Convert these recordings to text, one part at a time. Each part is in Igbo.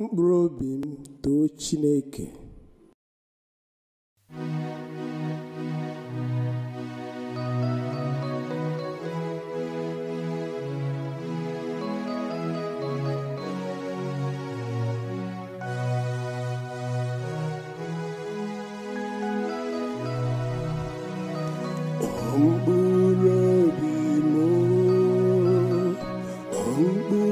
mkpụrụ obi m too Chineke mkpụrụ obi m mkpụrụ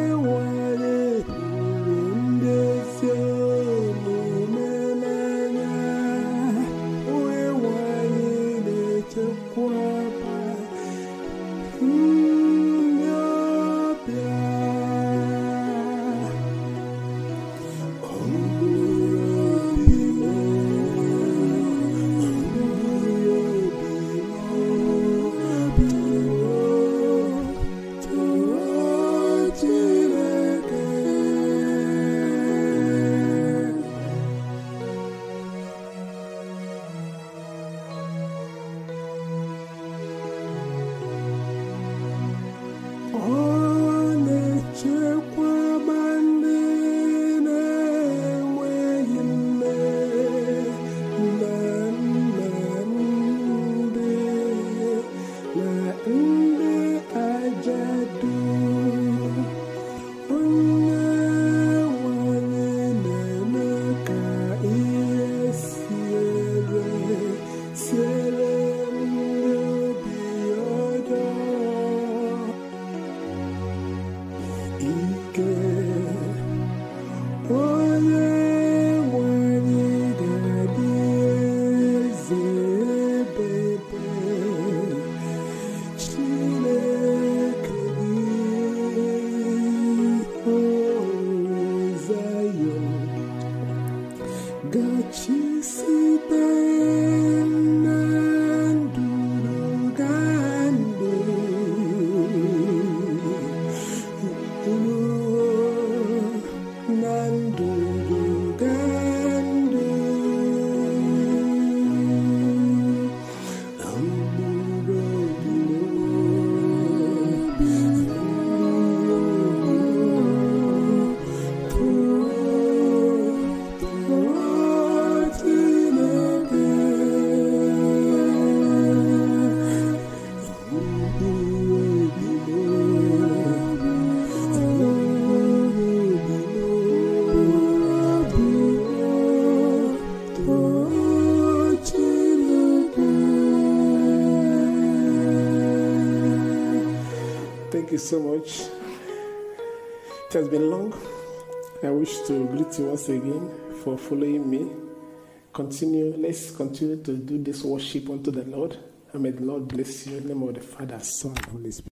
的青丝白。Thank you so much. It has been long. I wish to greet you once again for following me. Continue, let's continue to do this worship unto the Lord. And may the Lord bless you in the name of the Father, Son, and Holy Spirit.